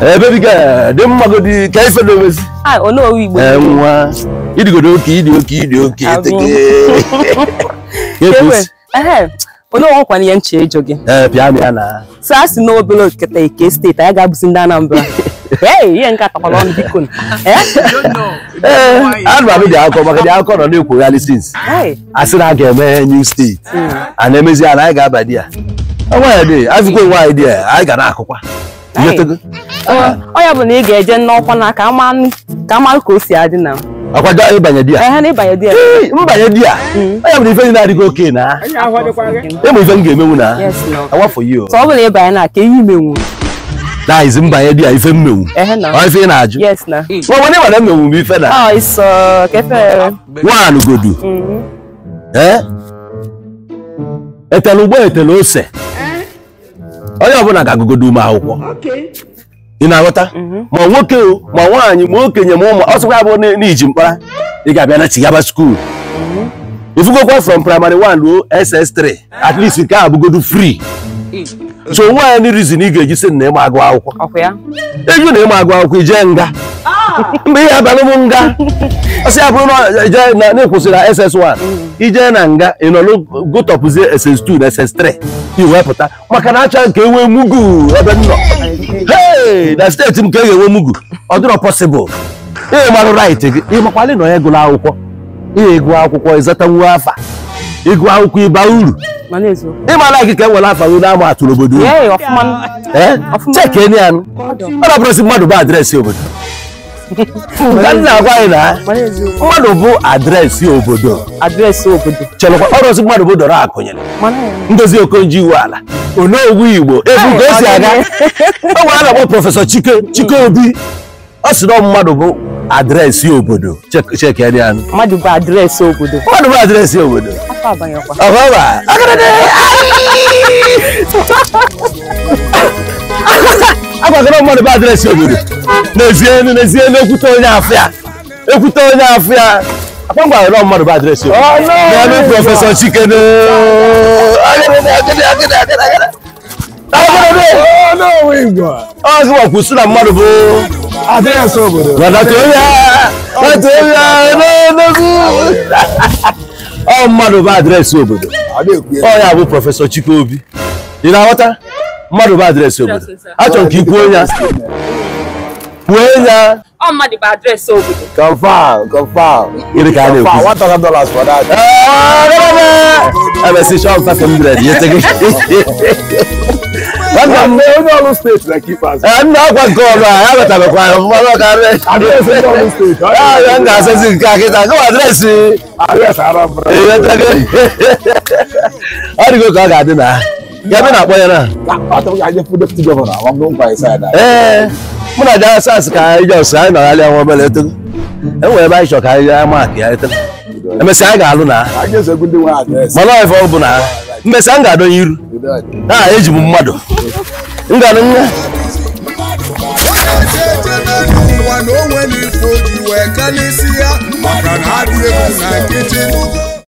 ebe eh, ka dị mmagodị ka ife dozi ah, eh, nwa ịdịgodo oke ịdị oke ịdị oke onyeọgwụkwana ihe nche ịjụ gị eh, so a sị na obere oketa ike steeti anyị ga-abụzi ndị Anambra ihe nke atakwala ọnụ biko anụ abụ dị akọ maka dị akọ nọ na-ekwogharị sins asị na a ga-eme new steeti hmm. a na-emezi a na anyị ga-aba di ya nwaanyị dị azụkwa nwaanyị dị ya anyị ga na-akụkwa onye bụ na ị ga-eje n'ọkwa na ka amalụ ka o si adị na akwaja ịbanye di mm. ya mbanye di ya onye bụ ife ndị na-adịghị oke na ịmụ ife m ga-emenwu na awafọ yi ọ bụla ịbanye na ka ihe imenwu na izi mbanye di ya ife mmenwu ife ị na-ajụ nwa ndị mana mmenwu m ife na nwaanụ godu etele ụgbọ etele ose onye ọbụla ga-agụgodo ume akwụkwọ ị na-aghọta mhm. ma nwoke ma nwaanyị ma okenye ma ụmụ ọsọkwa abụ n'iji mkpara ị ga-abịa na chigaba skuul ifugokwa mhm. from primary 1 ruo ss3 at least nke a abụgodo free so nwaanyị anyị rizin ị ga-eji sị na ịma agụ akwụkwọ ịjụ na ịma agụ akwụkwọ ije nga mgbe ihe abalị m nga ọsị ya bụrụ na na-ekwụsịrị na ss1 ije na nga ị nọ n'gotọpụzie ss2 na ss3 iwepụta maka na acha nke enwe mugu ebe m nọ hei na steeti m ka e ga-enwe mugu ọ dịrọ pọsịbụl ị marụ rait gị ịmakwalị na onye gụrụ akwụkwọ ị ga-egụ akwụkwọ ịzata ịzatanwu afa Ikwa ukwu iba uru. Ịma na ikike nwere afọ gị n'ama atụrụ obodo uru. Cheki enyi anụ. Ọ dapụrụsị mmadụ bụ adreesị obodo. Nka nna agwa anyị na mmadụ bụ adreesị obodo. Adreesị obodo. Chelekwa ọrụsị mmadụ bụ dọrọ akụnyere. Ndozi Okonjo iwu ala. Onowu Igbo ebu ka o aga. O nwere a na-akpọ Prọfesọ Chike Chike Obi. Ọ sị na mmadụ bụ adreesị obodo. Cheki enyi anụ. Mmadụ bụ adreesị obodo. Mmadụ bụ obodo afa abayọ mmadụ bụ adịrịsị obodo n'ezie n'ezie n'ekwute onye afịa ekwute onye afịa akpọmkwara mmadụ bụ adịrịsị obodo n'ebe prọfesọ chikene ọzọ kwụsị na mmadụ bụ adịrịsị obodo ọ mmadụ bụ adreesị obodo ọ ya bụ prọfesọ Chikeobi ị na-aghọta mmadụ bụ adreesị obodo achọrọ m ka ị kwuo ya kwuo ya ọ mmadụ bụ adreesị obodo confam confam gịnị ka a na-ekwu ebesịcha ọgụta 100 nyete gị That's the only Olu state that keep us. Eh, I'm not going to go around. I have a time of fire. I'm not going to address the Olu state. I'm not going to say it. Go address it. Address Arab. How do you go to Aga Adina? You've been up there now. I thought I just put the deputy governor. I'm going by side. Eh. Mo na ja sas ka ijo sa na ale àwọn bele to. E wo ba iso ka ya ma ki ale to. E me sa ga alu na. Aje se gunde wa address. Mo lo e fo bu na. Mbe sa ga do yiru. Na eji bu mmadu. ngana ụwa na onwe wee n'isi ya maka na